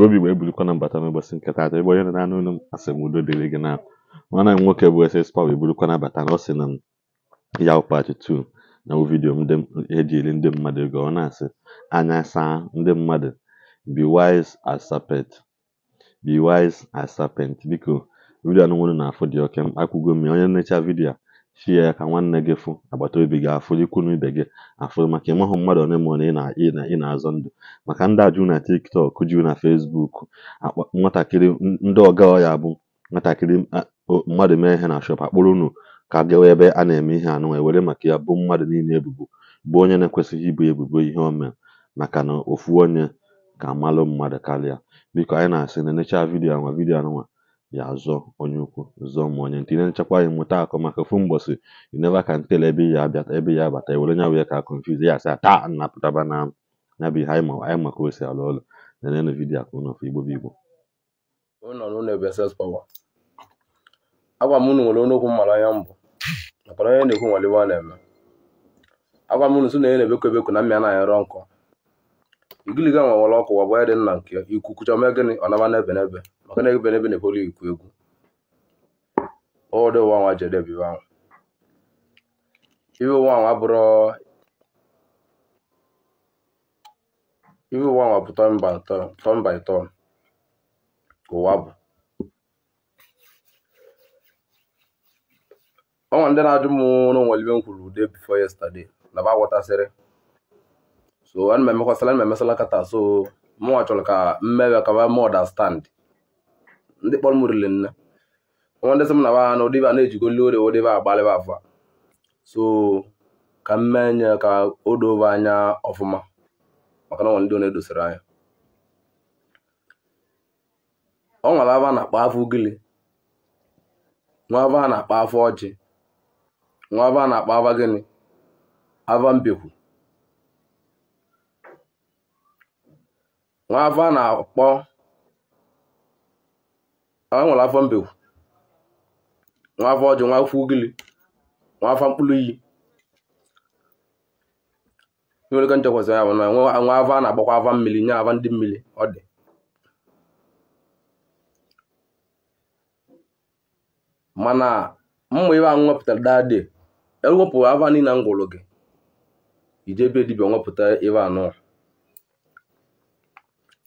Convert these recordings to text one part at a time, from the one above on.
asoebi Igbo eburukwana mbata n'ụbọchị nke taata ebe onye nọ n'anụ ụlọ m asị udo dịrị gị na nwanne m nwoke bụ ss paw eburukwana abata na ọ sị na ya ụkpachi 2 na vidiyo dị eri ndị mmadụ ego ọ na-asị anya saa ndị mmadụ be wise as serpent be wise as serpent biko vidiyo anụ nwere na afọ dị oke m akwụgo mmiri onye na-echa vidiyo a chi ya ka nwanne gị fụ obi gị afụ ikwu na ibe gị afụ maka ịmahụ mmadụ one ma one ị na-azọ ndụ maka ndị ajụ na tiktok jụ na fesbuk nwatakịrị ndị ọga ya bụ nwatakịrị mmadụ mee ihe na shop akpụrụ unu ka gawa ebe a na-eme ihe anụ e were maka ya bụ mmadụ niile ebubo bụ onye na-ekwesịghị ibu ebubo ihe o mere maka na ofu onye ka malụ mmadụ karịa biko anyị na-asị na necha vidiyo anwa vidiyo anụnwa ya azọ onye ukwu zọọ ma onye nta ine nchekwa anyị mụta akọ maka ofu mgbọsị you never can tell ebe ya abata ebe ya abata ewere nya wee ka confuse ya asa taa nnapụtaba na ya bụ ihe anyị maka o si alụ ọlụ na nenụ igbo bụ igbo agwa m unu nwere onokwu anya mbụ onye na-ekwu nwere na-eme agwa m sị na onye na-ebekọ ebekọ na mmịa na nkọ igiliga nwa ọkụ wa bụ ya dị nna nke ikwu kwucha mee gịnị ọ naba n'ebe n'ebe maka na ebe na ebolo ikwu egwu ọdụ nwanwa jedebe nwanwa iwe nwanwa bụrụ iwe nwanwa bụ tọn by tọn ka ụwa bụ ọnwa ndị na-ajụ m n'onwere ibe m kwuru ude bifo yesterday na ba aghọtasịrị so ana m emekwasịla ana m emesala nkata so mụnwa chọrọ ka mmewe ka ba m understand ndị kpọrọ m riri nne nwa ndị sị m na wa ha na ụdịba na-ejigoli ore ụdịba agbalịba afọ so ka m mee nye ka o dove anya ọfụma maka na ọnwa ndị na-edosara anya ọ nwere aba na-akpa afọ ugili nwa aba na-akpa afọ ọjị nwa aba na-akpa aba gịnị aba mbekwu nwa aba na-akpọ a nwere afọ mbe nwa afọ ọjị nwa afọ ugili nwa afọ mkpụrụ iyi nwere ike nchekwasị ya bụ na nwa afọ a na-agbakwa afọ mmiri nye afọ ndị mmiri ọ dị mana mma ibe anwụ nwepụtara daadị ewepụ afọ niile m gwụrụ gị ije ebe dibịa nwepụta ibe anọ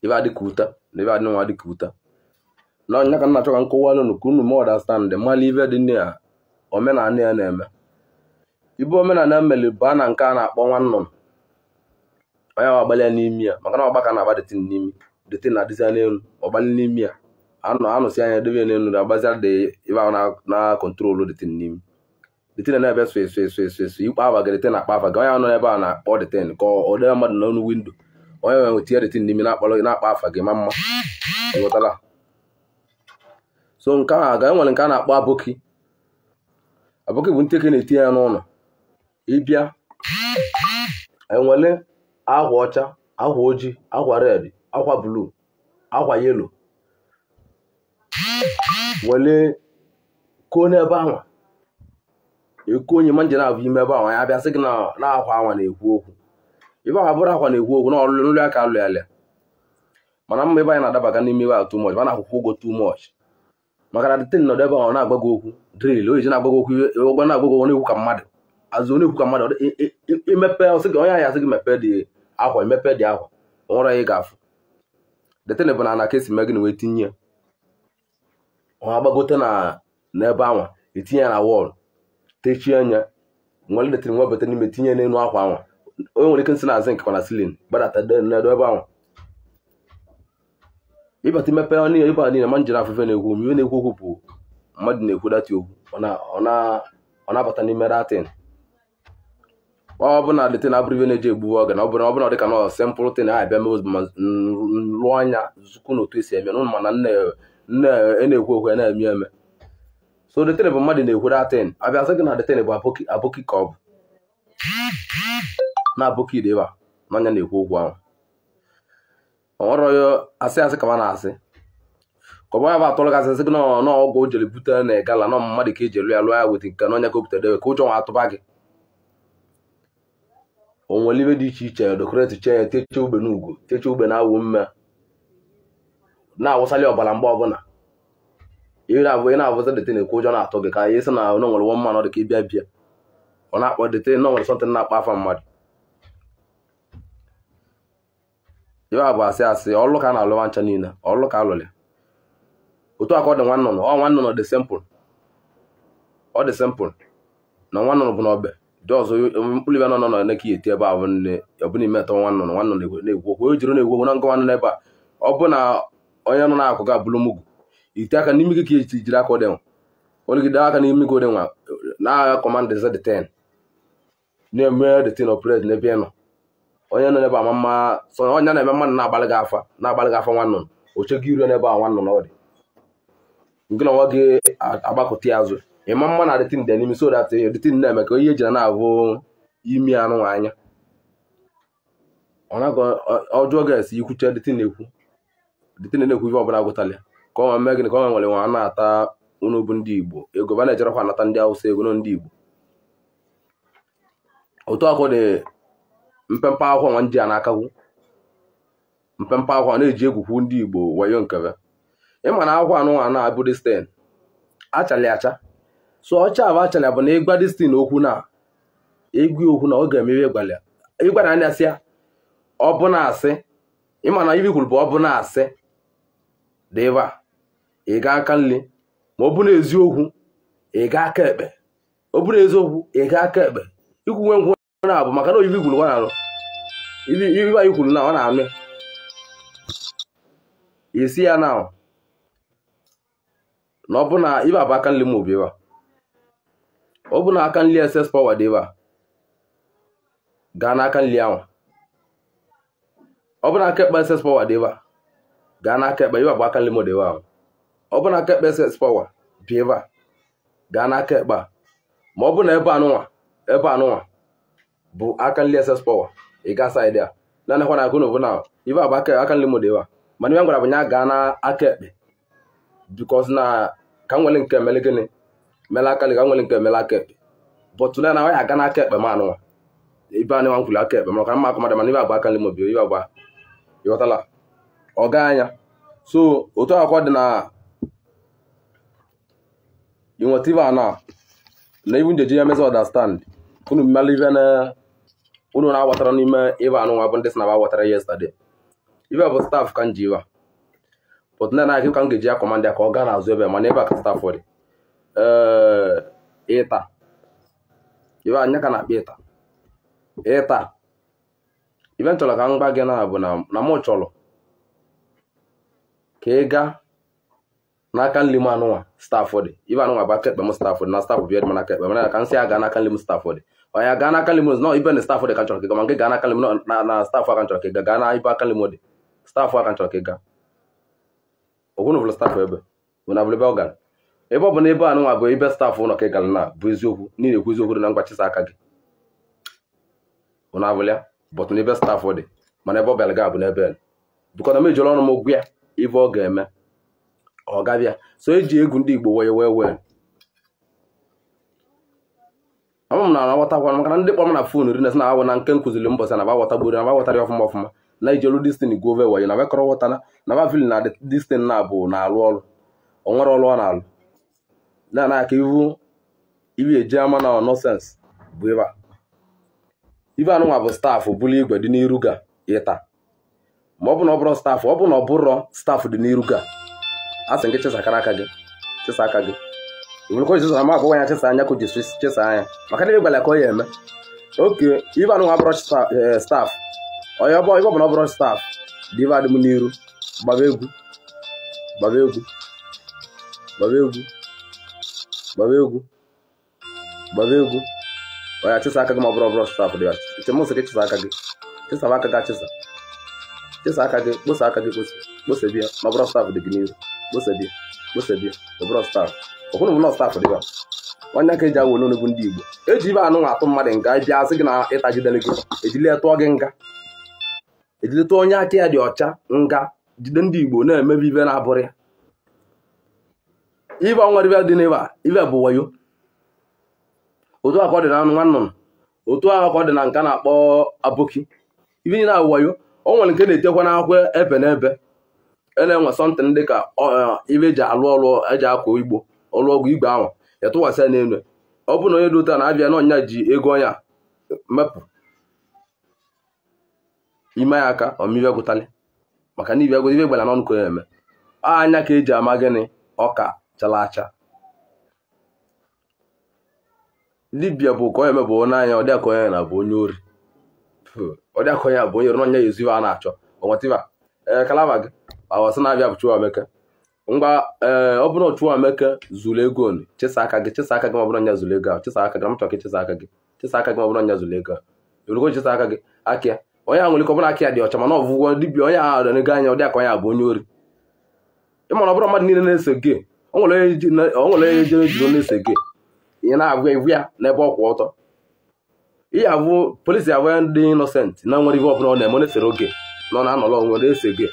ibe adị ka na ibe adị nwa dị ka na onye ka na-achọ ka nkọwalụ unu ka unu ma ọdastandị mmalụ ive dị ya omenala ya na-eme ibu omenala mmeli bụ a na nke a na-akpọ nwa nnụnụ onye ahụ agbalị ya n'imi ya maka na ọgbaka na-agba detin n'imi detin na-adịzi n'elu ọgbalị n'imi ya anụ anụsị anya debe ya n'elu agbazia dị ibe ahụ na kọntrolu detin n'imi detin na-ebe sụ esu esu esu esu ikpe abaga detin akpa afa gị onye nọ n'ebe a na-akpọ detin ka ọ debe mmadụ n'ọnụ windo onye nwere tinye detin n'imi na-akpa afa gị ma mma ghọtara so nke a ga nwere nke a na-akpọ aboki aboki bụ nteke na-etinye ya n'ụlọ ịbịa enwele akwa ọcha akwa ojii akwa red akwa bluu akwa yelo wele koo n'ebe ahụ eko onye ma nje na-abụ ime ebe ahụ ya bịa sị gị na akwa anwa na-ekwu okwu ebe ahụ abụrụ akwa na-ekwu okwu na ọlụlụ aka alụ ya lịa mana mma ebe anyị na-adabaga n'ime ebe ahụ too much mana akwụkwọ ụgwọ too much maka na dịtịn nọdụ ebe ọ na-agbago okwu dril oyizi na-agbago okwu gba na-agbago onye ka mmadụ azụ onye ka mmadụ imepe ọsị gị onye ahịa asị gị mepee dị akwa emepe dị akwa nwere anyị ga-afụ dịtịn bụ na ka esi mee gị na wee tinye ọ agbagote na n'ebe anwa etinye ya na wọl techie anya nwere dịtịn nwebata n'ime tinye n'elu akwa anwa onye nwere ike nsị na azị nkekwa na silin gbadata ebe anwa ịbata imepe ọ niile ịbata niile ma njere afefe na-ekwu mgbe na-ekwu okwu bụ mmadụ na-ekwu data okwu ọ na-abata n'ime datin ọ bụ na letin abụrụ ibe na-eji egbu oge na ọ bụrụ ọbụla dịka nọ sempụl tin a bịa mebe ma lụọ anya zukwu na otu esi eme n'ụlọ mana e na-ekwu okwu e na-eme eme so letin bụ mmadụ na-ekwu datin abịa sị gị na letin bụ abụki ka ọ bụ na abụki deba n'anya na-ekwu okwu ahụ ọrọ asị asị kama na asị kọba ya bụ atụrụ gasị asị gị nọ ọgwụ o jere bute na gala nọ mmadụ ka eji elu ya lụọ ya weta nke n'onye ka o butere ka ụjọ nwa atụba gị onwere ibe dị iche iche dokoreti chee ya techie ugbe n'ugwu techie ugbe na-awụ mme na-awụsali ọbara mgbe ọbụla ire abụọ ị na-abụzi dete na-ekwu ụjọ na-atụ gị ka anyị sị na onye nwere nwa mmanụ dị ka ịbịa bịa ọ na-akpọ dete na nwere sọntị na-akpọ afa mmadụ ibe a bụ asị asị ọlụ ka a na alụ ncha niile ọlụ ka alụlị otu aka ọ dị nwa ọ nwa dị simpụl ọ dị simpụl na nwa nnụnụ bụ na dị ọzọ mkpụrụ ibe nọ nọ na ihe eti ebe a bụ nne ọbụ n'ime nwa na-egwu okwu jiri na-egwu na ebe a ọ bụ na onye nọ na-akụ ga bụrụ mugu ite aka n'imi gị ka ji jiri nwa aka gị na-agha d na-eme n'ebe ị nọ onye nọ n'ebe ama mma onye na-eme mmadụ na-agbalị gị afa na-agbalị gị afa nwanne m oche gị iru n'ebe a nwanne m ọ dị gị na nwa gị agbakọta ya azụ ịma mma na adịtin dị n'imi so dat dịtin na-eme ka ihe eji na-abụ imi anụ anya ọjọọ ga-esi ikwuche dịtin na-ekwu dịtin na-ekwu ihe ọbụla gụtala ka ọ mee gịnị ka ọ nwere nwa na-ata unu ndị Igbo ego ba na-ejerekwa anata ndị Awụsa ego ndị Igbo otu ọkụ dị mpempe akwụkwọ nwa ndị a na-akagwu mpempe akwụkwọ na-eji egwukwu ndị igbo wayo nkebe ịma na akwụkwọ anụ nwa na-abụ destin achala acha so ọcha abụ achala bụ na ịgwa destin okwu na egwu okwu na ọ ga-emewe ịgwara anya sị ya ọ bụ na asị ịma na ibi kwuru bụ ọ bụ na asị dịba ị ga aka nri ma ọ bụ na eziokwu ị ga aka ekpe ọ bụrụ eziokwu ị ga aka ekpe ikwuwe nkwụ na-abụ maka na oyibi kwuru anyị kwuru na ọ na-amị isi ya na na ọ bụ na ibe abụ aka nli m obi ebe ọ bụ na aka nli ss power dị ebe a gaa n'aka nli ahụ ọ bụ na aka ekpe ss power dị ebe a gaa n'aka ekpe ibe abụ aka nli m dị ebe ahụ ọ bụ na aka ekpe ss power dị ebe a gaa n'aka ekpe a ma ọ bụ na ebe anụnwa ebe anụnwa bụ aka nri ss power ị ga saịdị a nanakwa na akụnụbụ na ife abụ aka nri mode wa mana ihe m gwara bụ ya gaa na aka ekpe bikos na ka nwere nke mele gịnị mele aka ka nwere nke mele aka ekpe bọtụ na ya aga e e e na ekpe ma anụnwa ibe nwa nkwuli aka ekpe maka mma akụmadụ mana ibe abụ aka nri mode ibe abụ ịghọtala anya so otu akwụkwọ dị na a na na ibu njeji ya mezi unu mmalụ unu na-agbọtara n'ime ịba anụnwa bụ ndị si na ba gbọtara yesterday ibe bụ staff ka m ji iba but ndị na-akị ka m ga-eji ya kọmanda ka ọ gaa n'azụ ebe mana ebe a ka staff dị ịta ibe anya ka na-akpa ịta ịta ibe m chọrọ ka m gba gị na bụ na mụ chọrọ ka ị gaa n'aka nri m anụnwa staff dị ibe anụnwa bụ aka ekpe m staff dị na staff bịa dị m n'aka ekpe mana ka m si aga n'aka nri m staff dị ya gaa n'aka limo nọ ibe na stafụ dị ka nchọrọ ka ịga ma nke gaa n'aka na na aka nchọrọ ka ịga gaa na ibe aka limo dị stafụ aka nchọrọ ka ịga ogwunu bụrụ stafụ ebe bụ na ebe ọ gara ebe ọ bụ na ebe a bụ ibe ụlọ ka ị na bụ eziokwu n'ihi ekwu eziokwu dị na aka gị ụna abụlịa na ebe stafụ dị mana ebe ọ bịara oh, m ejiri ọnụ ga-eme ọ gabịa so eji egwu ndị Igbo wee wee wee ọ m na aghọtakwa maka na ndị kpọrọ m na fon ri na awụ na nke nkụziri mbọsị na aghọtagburu na aghọtara ọfụma ọfụma na ijelu destin gove wayo na bekọrọ ghọtana na bavili na destin na abụ na-alụ ọrụ ọ onwere ọrụ ọ na-alụ na na aka ivu ibi eji ama na nọsens bụ ịba ibe anụnwa bụ staafụ bụrụ igwe dị n'iru ga ịta ma ọ bụ na ọ bụrụ staafụ ọ bụ na ọ bụrọ staafụ dị n'iru ga a sị nke chesa aka gị chesa aka gị mun ko zuzu ma ko ga ta sanya ku district ta sanya makana be bala ko yema okay iba no abroad staff oyo bo iba no abroad staff diva de muniru babegu babegu babegu babegu babegu oya ta saka ma a abroad staff diva te mo se ta saka ge ta saka ga ta ta saka ge bo saka ge bo se biya ma abroad staff de gniru bo se biya bo se biya abroad staff ụfọdụ bụ nọọsụ tafụ dịba nwanne aka eji agwa ololo bụ ndị igbo eji ibe anụ atụ mmadụ nga bịa e sị gị na ịtagidele gị ejile e tụọ gị nga ejile tụọ onye aka ya dị ọcha nga jide ndị igbo na-emebi ibe na-abụrụ ibe nwere ibe dị n'ebe ibe bụ wayo otu akọ dị na anụ nwa nnụnụ otu akọ dị na nka na-akpọ aboki ibe niile abụ wayo o nwere nke na-etekwa n'akwụkwọ e ebe na ebe na-enwe sọntịn dị ka ibe eji alụ ọlụ eji akọ igbo ọgwụ igwe ahụ ya tụwasịa n'elu ọ bụrụ na onye dota na-abịa n'ọnya ji ego ọnya mepụ ime ya aka ọmibe gwụtalị maka na ibe gwụ ibe gbala n'ọnụ ka onye eme anya ka eji ama gịnị ọka chala acha libia bụ ka onye mebụ onye anya ọ dịaka onye na bụ onye ori ọ dịaka onye bụ onye ori n'ọnya ya eziwe a na-achọ ọnwatiba ee kalaba gị awasị na-abịa bụ Chukwuemeka ngwa ee eh, ọ bụrụ otu ameke zuru ego onu chesa aka gị chesa aka gị ma ọbụrụ anya zuru ego ahụ chesa aka gị mụtọ gị chesa aka gị chesa aka gị ma ọbụrụ anya zuru ego ahụ chesa aka gị akịa onye nwere ike dị ọcha mana ọbụgwọ dibịa onye ahụ dịrị anya ọ dị aka onye abụ onye ori ịmana ọ bụrụ mmadụ niile na-ese gị o onye jere jiri na-ese gị ihe na-abụ ya ọ ọtọ ihe abụ polisi abụ ya ndị na nwere ihe ọ eme oge na ọ onwe ese gị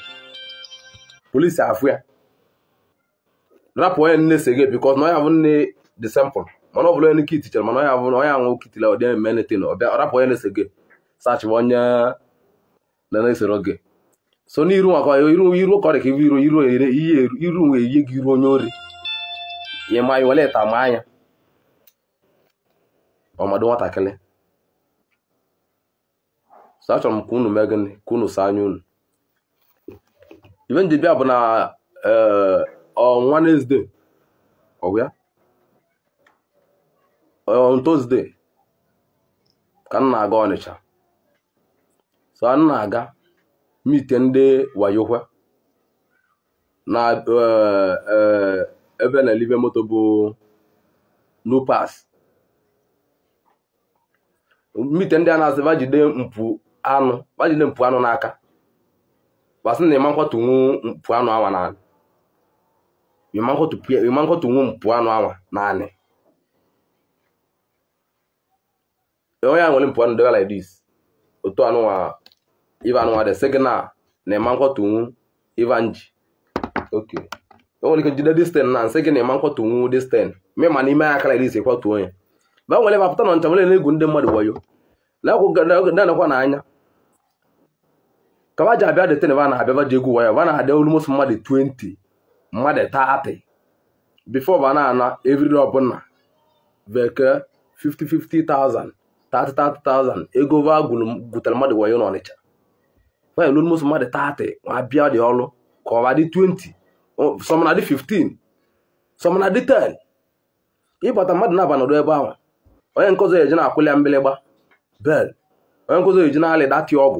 rapụ onye nne se gị bikọs na onye abụ nne dị sempụl mana ọ bụla onye nke itichara mana onye onye anwụ kitila ọ dị eme anything ọ rapụ onye na-ese gị sachịba onye na-esoro gị so n'iru maka iru iru ka iru iru ihe iru nwe eyi gị iru onye ori ihe ma anyị wele ịta ma anya ọmadụ nwatakịrị so achọrọ m ka unu mee gịnị ka unu saa anya unu ibe bụ na ee on um, Wednesday ọ bụ ya on Tuesday ka na-aga Ọnịcha so m na-aga mite ndị wayokwe na uh, uh, ebe na-elibe moto bụ nupas mite ndị a na-asị bajide mpụ anụ bajide mpụ anụ n'aka gbasị na ịma nkwatunwu mpụ anụ awa n'ala you pia nwụ mpụ anụ naanị onye a nwere mpụ anụ like otu de sị na na ịma nkwọtụ nwu nji ok o nwere ike jide dis ten na nsị na ịma nkwọtụ nwu dis ten ma n'ime ya aka like this ịkwọtụ onye ba na na-egwu mmadụ wayo na-anọkwa n'anya ba ji de ba na ba ji egwu wayo ba na-adị olu mmadụ 20 mmadụ taatị bifo ba na-ana evri ọbụla bekee 50-50,000 30-30,000 ego va gwutere mmadụ wayo n'Ọnịcha nwaanyị lụrụ mmadụ taatị ma bịa dị ọlụ ka ọba dị 20 sọmana dị 15 sọmana dị 10 ịbata mmadụ na-aba nọdụ ebe ahụ onye nkụzi eji na-akwụli ya mgbịlịgba bel onye eji na ọgwụ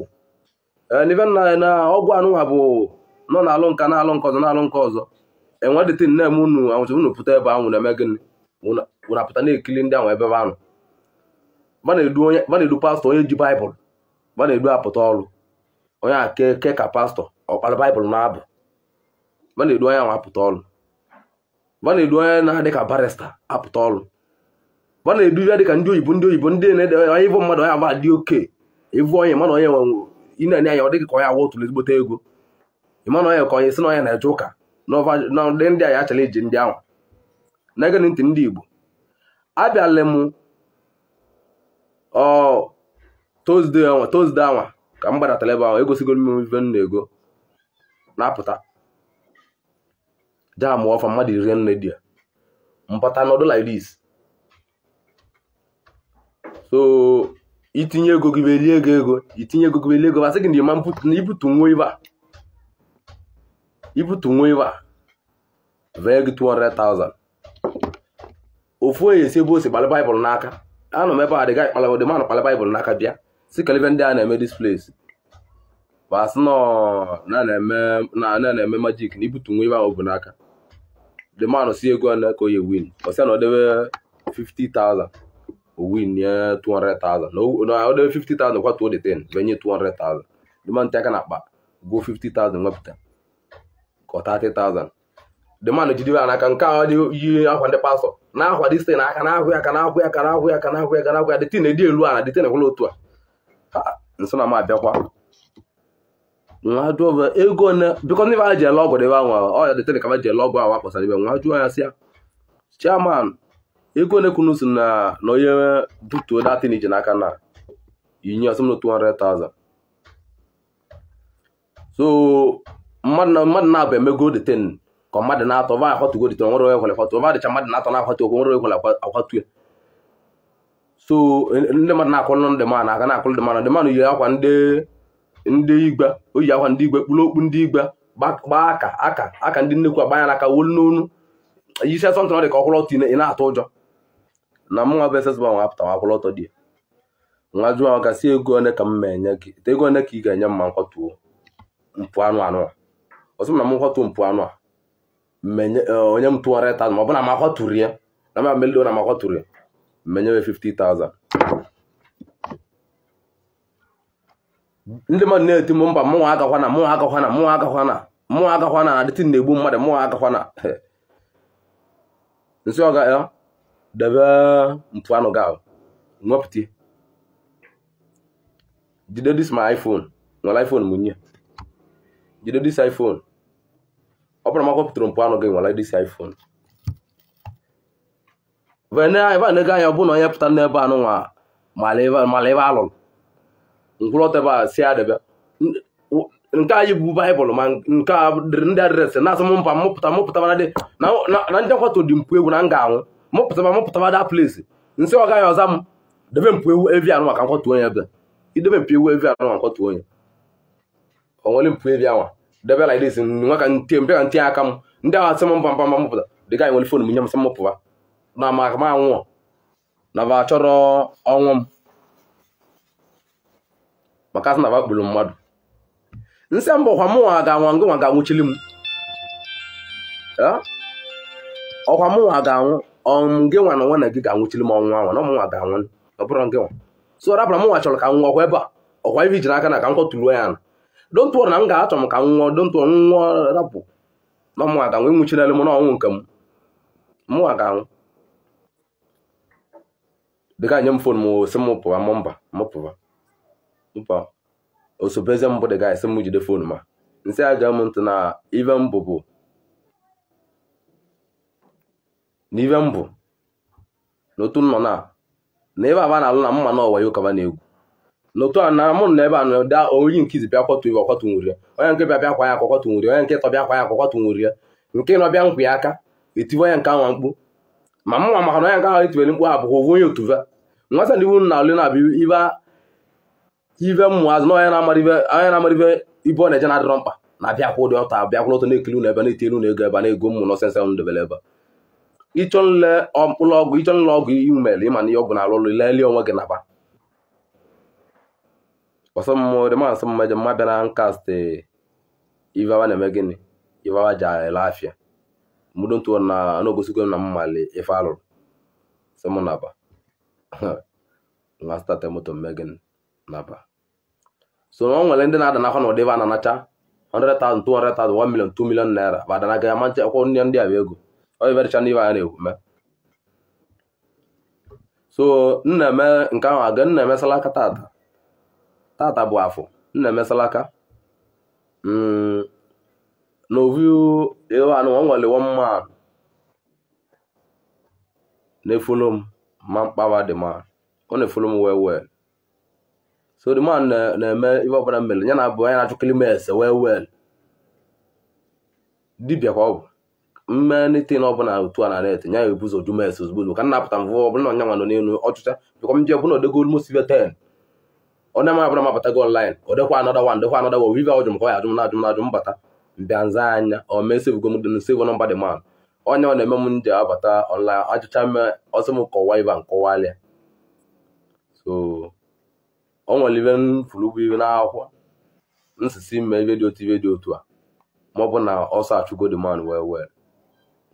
na ọgwụ anụnwa bụ nọ n'alụ nka na-alụ nke na-alụ nke ọzọ enwedịte nne m unu anwụcha unu pụta ebe ahụ na-eme gịnị wụna apụta na ekili ndị ahụ ebe ahụ ana-edu pastọ onye ji baịbụl ma na-edu apụta ọrụ onye a ke ka pastọ ọkpara baịbụl na-abụ ma na-edu onye ahụ apụta ọrụ ma na-edu onye na-adị ka barista apụta ọrụ ma na-edu ya dịka ndị oyibo ndị oyibo ndị na-ede onye ịbụ mmadụ onye agba dị oke ịbụ onye mana onye nwe ị na-enye anya ọ dịghị ka onye awa otu ezigbote ego ịma onye ka onye si na onye na-eje ụka na ndị a ya achara iji ndị ahụ na-ege ntị ndị Igbo abịala m Tuzdee anwa Tuzdee anwa ka m gbadatara ebe ahụ egosigo m ife m ego na-apụta jaa mụọ ọfa mmadụ iri nne di ya mpata n'ọdụ like this so itinye ego gị belie ego ego itinye ego gị belie ego masị gị na ịma ibutu nwa ibe a ibutu nwa iwe vee 200,000 ofu onye si ebe o si kpalị baịbụl n'aka anọ m ebe a dịga ịkpalị dị manụ kpalị baịbụl n'aka bịa si kalibe ndị a na-eme displesi basị na na-eme majik na ibutu nwa iwe ahụ bụ n'aka dị manụ si ego na ka oye win osi na ọ 50,000 o win nye 200,000 na ọ 50,000 kwatuo dị 10 benye 200,000 dị manụ ntị aka na akpa gwuo 50,000 wepụta ka ọ 30,000 the man jidere n'aka nke a yi akwa ndị pastọ na-akwado site na aka ahụ ya ka na-ahụ ya ka na-ahụ ya ka na-ahụ ya ka na-ahụ ya detin edi elu ala detin ekwela otu a nso na m abịakwa nwa jụọ ego n'e bikọ ndị ha ji ele ọgwụ debe anwa ọya detin ka ha ji ele ọgwụ ahụ akpọsara ibe nwa jụọ ya sị ya chairman ego na-ekwunu si na na onye butuo datin iji n'aka na inye ọsọ m na 200,000 so mmadụ na mmadụ na-abụ emego deten ka mmadụ na-atọ va akwatugo deten nwere onye kwere akwatu va dịcha mmadụ na-atọ na-akwatu okwu nwere ekwere akwatu ya so ndị mmadụ na-akwụlụ ndị man aka na-akwụlụ ndị man ndị man yi akwa ndị igwe o yi akwa ndị igwe kpụrụ okpu ndị igbe gbaa aka aka aka ndị nnekwu agbanya n'aka wolu n'onu yi isi asọntị ọ dị ka ọkwụrụ ọtọ ị na-atụ ụjọ na mụnwa bụ esesba nwa apụta nwa akwụrụ ọtọ dị ya nwa jụọ gasị ego one ka m ma enye gị ego one ka ị ga-enye mma ma nkwatuo mpụ anụ anụ ọzọ na m kwatu mpụ anụ a e, onye m 200,000 ma ọ bụ na m akwaturu ya na m amelio na m akwaturu ya mmenyewe 50,000 ndị mmadụ na-eti m mba mụnwa agakwa na mụnwa agakwa na mụnwa agakwa na mụnwa agakwa na adịtị na-egbu mmadụ mụnwa agakwa na nsị ọga e, ya debe mpụ anụ nwepụta jide dis my iphone nwere iphone mụnye jide dis iphone ọ bụrụ pụtara mpụ anọ gị nwere dịsi iphone ebe a na-ego anya bụ na onye pụta n'ebe anụnwa mala ebe alụrụ ngwụlọta ebe a si adịbịa nke anyị bụ baịbụl ma nke ndị adreesị na-asị mba mụpụta na ndị nkwatụ dị mpụ egwu na m ga-anwụ mụpụtaba mụpụtaba da plesi nsị ọ gaghị ọza m debe mpụ ewu evi anụ maka nkwatu onye ebe idebe mpụ ewu evi anụ maka nkwatụ onye onwere mpụ evi anwa debe like this nwa ka ntinye aka m ndị ahụ asị m mba eh? mba mba m pụta nwere fon m nye m sị m pụwa na maka m anwụọ na ba chọrọ ọnwụ m maka asị na ba kpụrụ mmadụ nsị mbụ ọkwa m nwa ga-anwụ ngụ ga-anwụchili m ọkwa m nwa ga-anwụ ọmụgị nwa na nwa na gị ga-anwụchili m ọnwụ anwa na m ga-anwụ ọ bụrụ gị nwa so rapụra m nwa chọrọ ka m nwa ọkwa ebe a ọkwa ibi jiri aka na ka m kwọtụruo ya na don't worry na m ga-achọ m ka m nwụọ don't worry m nwụọ rapụ na mụ aga nwụ nwụchirela m na ọnwụ nke m mụ aga anwụ dịga nye m fon m si m pụwa m mba m pụwa mpa osobeze mbụ dị ga-esi m jide fon ma nsị aja m ntị na ive mbụ bụ n'ive mbụ n'otu nọ na na ebe aba na-alụ na mma na ọwa ya ụkaba na egwu n'otu a na mụ na ebe a na-ada oyi nkizi bịa kwọtụ iwe ọkwọtụnwuri ya onye nke bịa bịa kwa ya akwọkwọtụnwuri ya onye nke tọbịa kwa ya akwọkwọtụnwuri ya nke nọ bịa nkwa aka etiwe onye nke anwa mkpu ma mụnwa maka na onye nke ahụ etibere mkpu abụghị owu onye otuva nwata ndị na alụ na abịa ibe ibe azụ na onye na-amara ibe ibe ọ na-eje na-adịrọ mkpa na-abịa ụdị ọta abịakwụrụ ọtọ na-ekiri unu ebe na-eti elu na ego ebe na-ego mmụ na ọsịsa m dobere ebe ịchọ nle ọgwụ ịchọ nle ọgwụ iwu ịma na ihe ọgwụ na-alụ ọlụ lelie onwe gị naba ọsọmmụdị masị mmejọ mma bịa na nkastị ivawa na-eme gịnị ivawa ji ele afịa ntụ na na-egosigo na mmali ife alụrụ sị mụ naba nwa stata moto mme gịnị naba so o nwere ndị na-ada n'afọ na ụdị iva na-anacha 100,000 200,000 1 million 2 million naira ba ya manche akwụkwọ ndị ndị a bụ ego ọ iverecha ndị ya na-ekwu so nna nke ahụ aga nna emesala ata tata bụ afọ nna emesala aka mm, ovu ewan nwere one man na-efolo m ma mkpawa the man ọ na-efolo m well well so the man na-eme ihe ọbụla mmele ya na abụ anya na-achọkili m ese well well dibịa ka ọ bụ mmenitin ọbụla otu a na net ya ya ebuzo jumes mes ozugbo ka m napụta mvụ ọbụla ọnyanwa nọ n'elu ọchụcha bịkwa m ji ọbụla odegolu mosibe ten onye m abụrụ mapụtago online ọ dịkwa anọda wan dịkwa anọda wo ive ọjụ m ya ajụ m na-ajụ m na-ajụ mbata mbịa nza anya o mee sevugo m dịn nọmba dị man onye ọ na-eme m ndị ji abata online achịcha m ọsọ m kọwa ibe nkọwalịa so o nwere ibe m furu ụgwọ ah, ive n'akwụkwọ nsisi ime ibe dị otu ibe dị otu a ma bụ na ọsọ achụgo dị man wee wee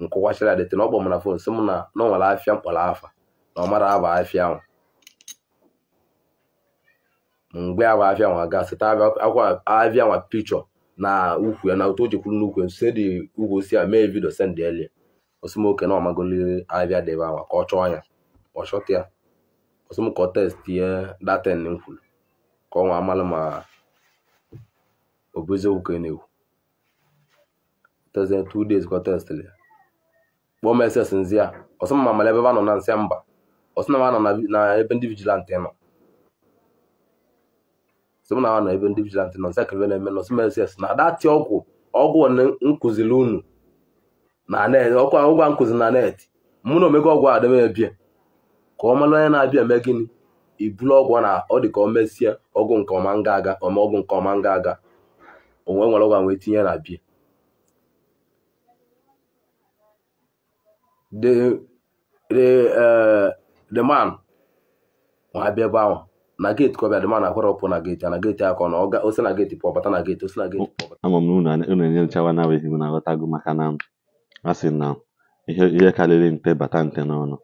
nkọwachara dịtị na ọ kpọ m na fon sị m na na ọ nwere afịa mkpọrọ afa na ọ mara aba afịa ahụ mgbe ahụ afịa nwa gasị taa akwa afịa nwa pikchọ na ukwu ya na otu o jekwuru n'ukwu ya sed ukwu osisi a mee vidio send elie osimoke na ọmagoliri ahịa dị anwa ka ọ chọọ ya ọ chọta ya osimoke ọ testie daten m kwuru ka ọ amalụ ma ọ na-ekwu tezie two days ka ọ testịrị ya kpọọ meses nzi ya ọsọ ma mara ebe ba nọ na nsị mba ọsọ na ma nọ na ebe ndị vigilant nọ sị m na ha na ebe ndị vigilante nọ nsaka ebe na-eme nọ sms na adatị ọgwụ ọgwụ nkụziri unu na net ọkwa ụgwọ nkụzi na net mụ na omego ọgwụ adịmebie ka ọ mara onye na-abịa eme gịnị iburu ọgwụ na ọ dị ka ọ mesie ọgwụ nke ọma nga aga ọma ọgwụ nke ọma nga aga onwe nwere ọgwụ wee tinye na bie the eh, man ma abịa ebe ahụ na geeti ka ọ bịa dị ma na-akwara ọpụ na geti na geti akọ na ọga osi na geeti pụọ bata na geeti osi na geeti pụọ bata ama m na unu enyechawa na abụghị m na-aghọtago maka na a sị na ihe karịrị nte bata nte n'ọnụ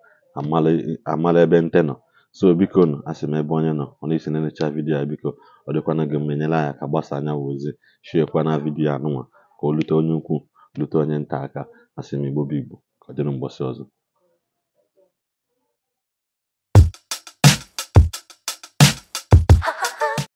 amala ebe nte nọ so biko nọ sị m ebe onye nọ ọ na-esi na-enyecha vidiyo a biko ọ dịkwana gị mma enyere anyị aka gbasa anya wụ ozi shiekwana vidiyo anụnwa ka o lute onye ukwu lute onye nta aka asị m igbo bụ igbo ka ọ dịrị mgbọsị ọzọ